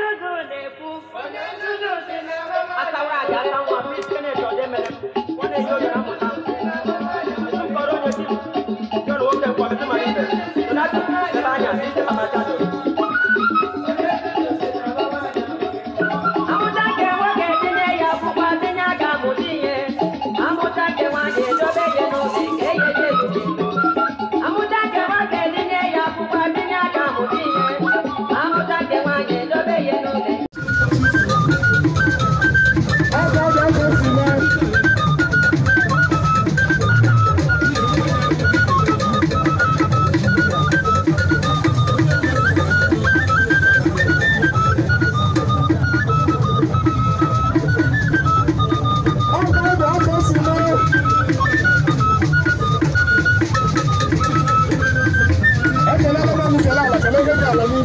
a saura a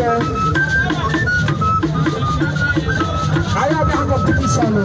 kẹ. ayé abẹ́ àgọ́ pípísà lọ.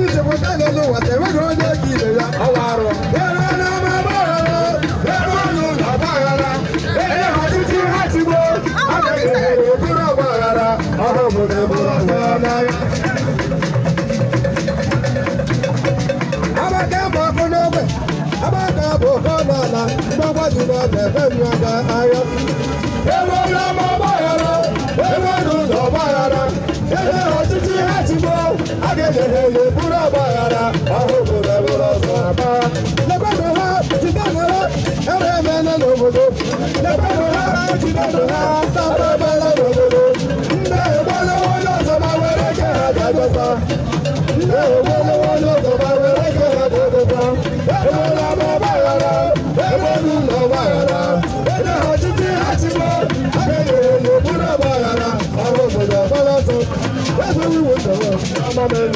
ní ṣèkọ́tà lọ́dún wà tẹ̀wé kan jẹ́ kí ilẹ̀ ya ọwọ́ àrọ̀. bẹ́ẹ̀rẹ̀ ọ̀nà ọmọ bá rọrọ bẹ́ẹ̀rẹ̀ ọ̀nà ọ̀bá rárá bẹ́ẹ̀rẹ̀ àti tí wọ́n ti gbó àgbẹ̀gbẹ̀ òkúrò ọ̀bá rárá ọ̀rọ̀ ahụhụ bịabụrụ ọzọ aba lekwanụ ha jidenụ ha ere emela n'obodo lekwanụ ha jidenụ ha sapabala n'obodo ndị egbolawo onye ọzọ ma were ke ha bịadosa ndị egbolawo onye ọzọ ma were ke ha bịadosa egbola ma ọgbaghara egbolu ụlọ ọgbaghara onye ha chiti ha chigbo ha That's what we want I'm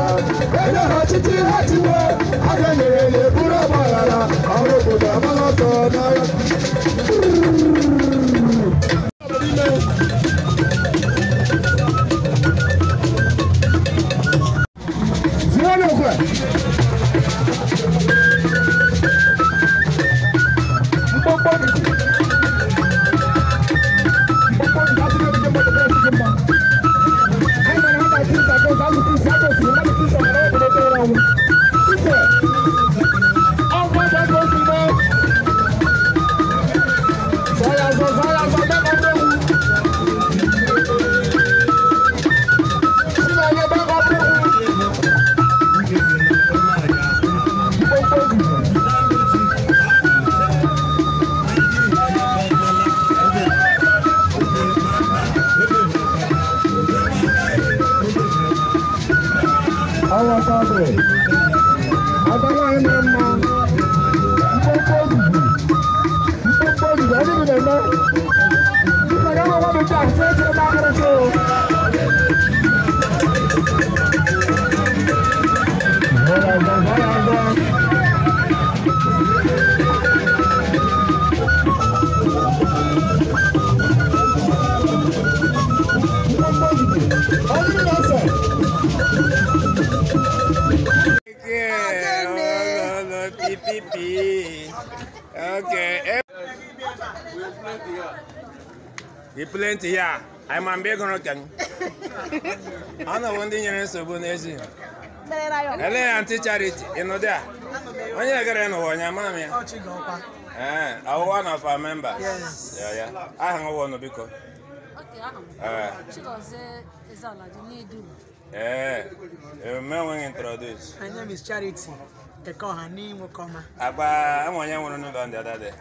títí láti wọ adẹ́nìrè lè búrọ̀ bọ̀ rárá àwọn òbòdò àbálọ́tọ̀ náírà. baby. Okay. We eh. plenty here. I'm a big rotten. I know one thing you're so good. Ele anti charity, you know that. When you get in one, your mammy. Oh, eh, I'm one of our members. Yes. Yeah, yeah. Okay, eh. eh, you may want to introduce. My name is Charity. Eko hani mukoma. Aba amwanya wono no ndo ndada de.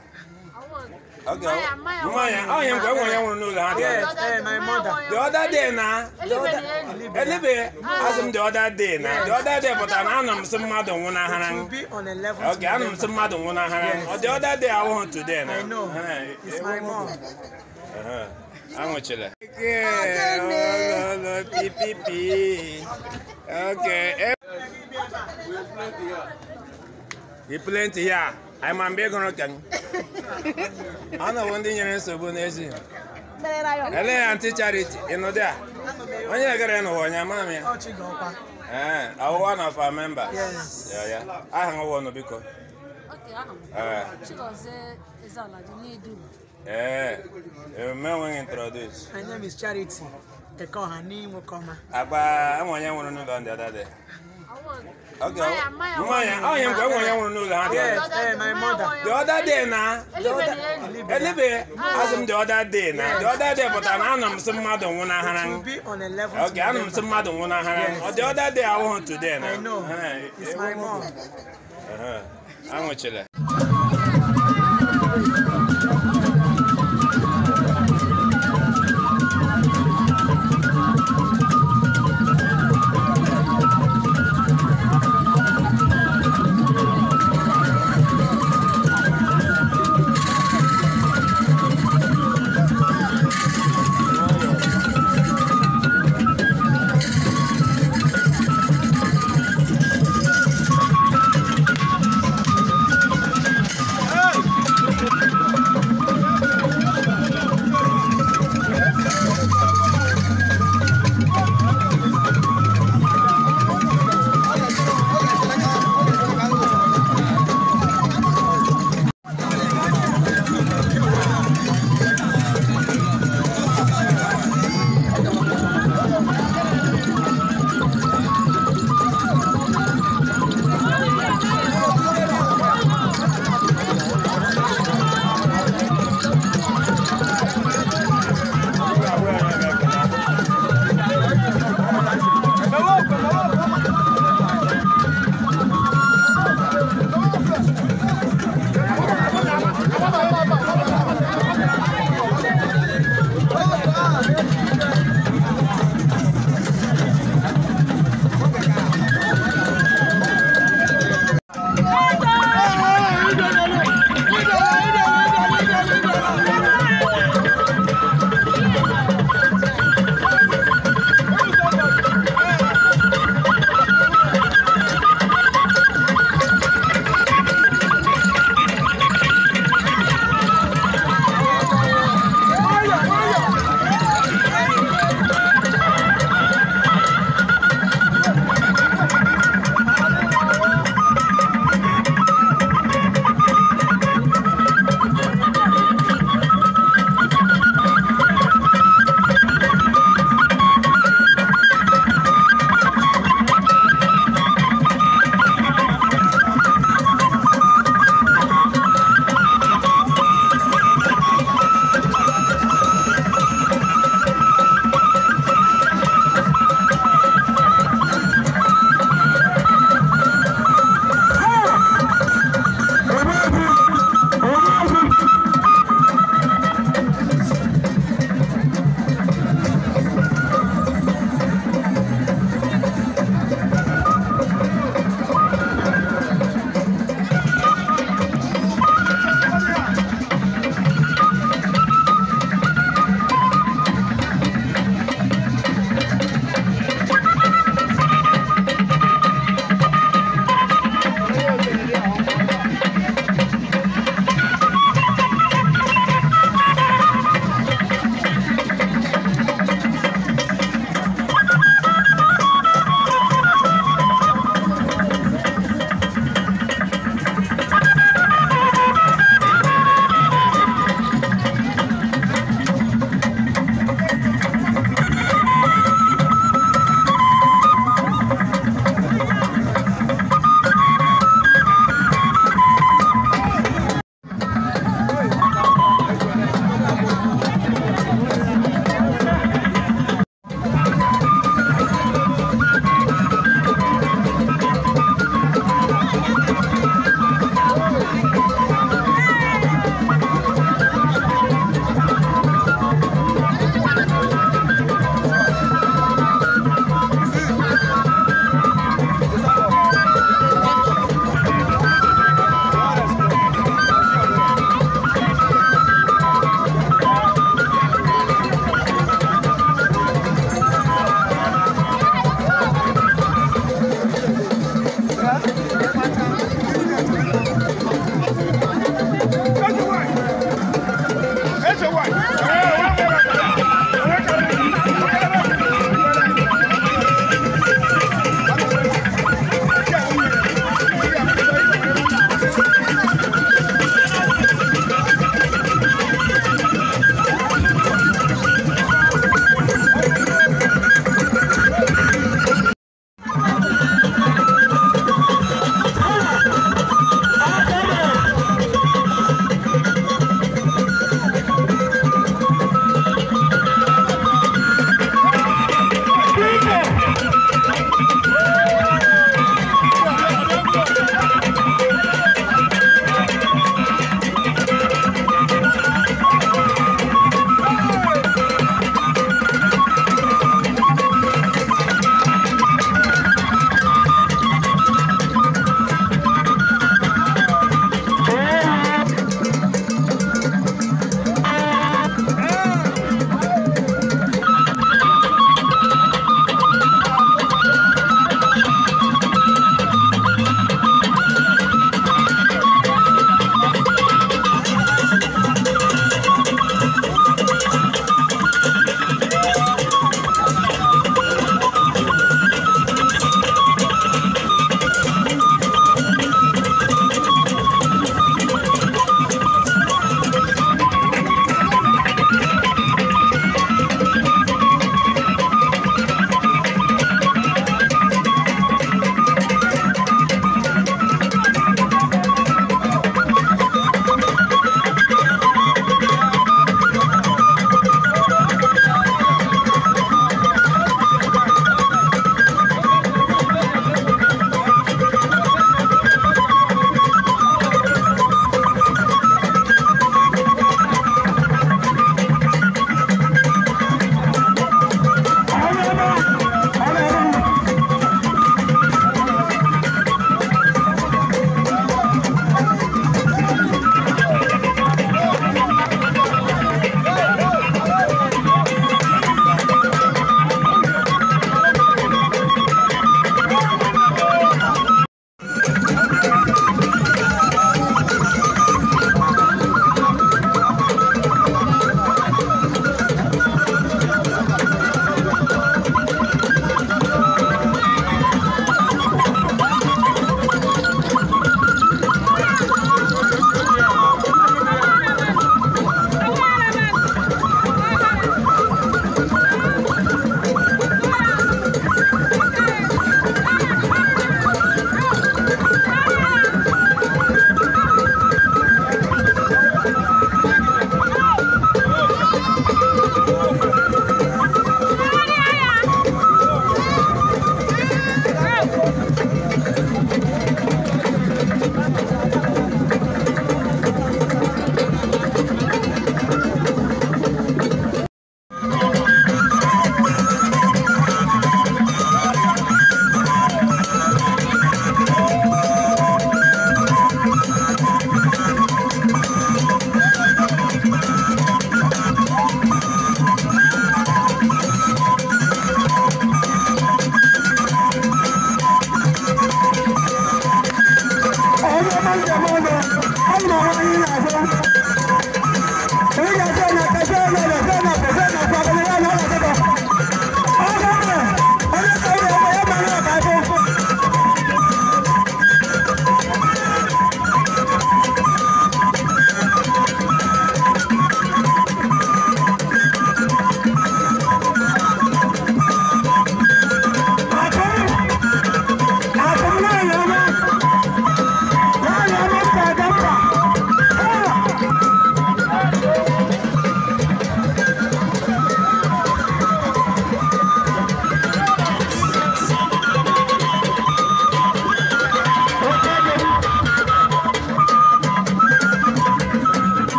Okay. Maya, oh yeah, go amwanya wono no ndo Yes, eh my mother. The other day na. The other. Elebe, asem the other day na. The other day but na anam sem madu wona hanan. To be on a level. Okay, anam sem madu wona hanan. The other day I want today na. I know. It's my mom. Uh-huh. Anwụchila. Okay. Oh, oh, oh, okay. Eh. He plenty here. I'm a big rotten. I know one thing you're in Sabu Nation. Ele anti charity ino dia. Onye agara no wonya mami. Eh, awu one of our members. Yes. Yeah, yeah. Aha ngwo no biko. Okay, aha. Eh. Chigoze ezala di nedu. Eh. Eme wen introduce. My name is Charity. Tekohani Mukoma. Agba, I'm onye nwuru no don the other day. Okay. Maya, oh, yeah, one know that. Yes, ha my mother. The other day now. Elebe, as the other day now. The other day, but I'm anam some mother one hand. To be on a Okay, anam some mother one hand. The other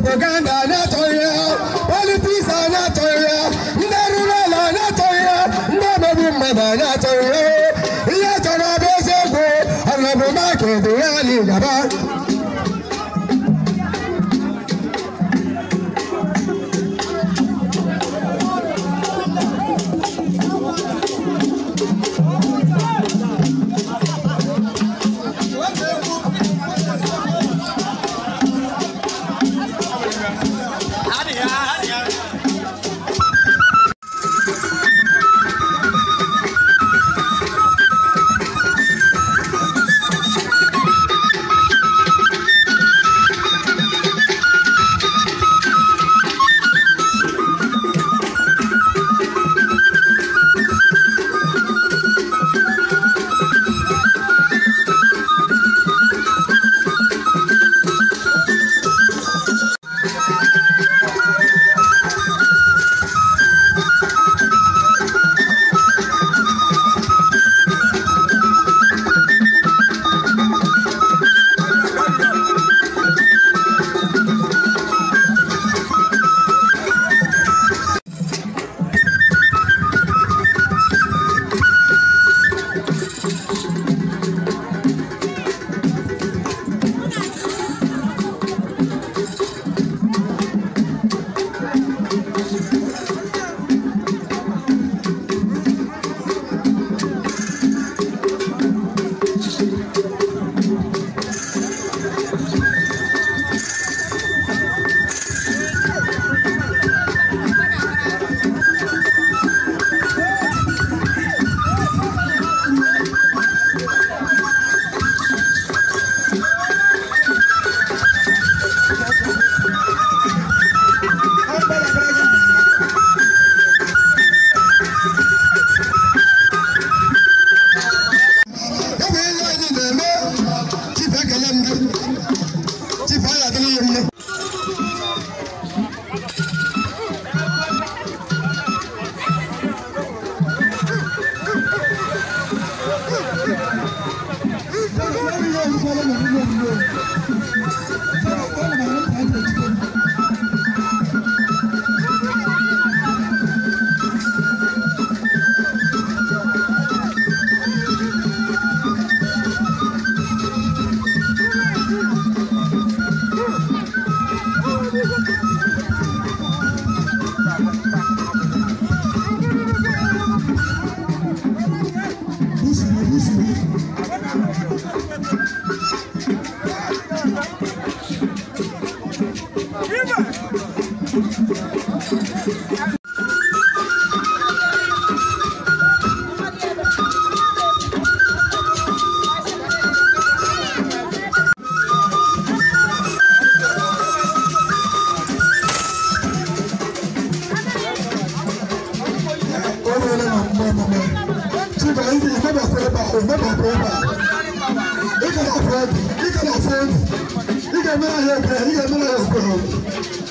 propaganda not oil, politics are not oil, ndị rural are not oil, ndị omegbu mmadụ not oil. Ihe chọrọ bụ eziokwu, ọnọdụ maka edu ya na Amiga, não é o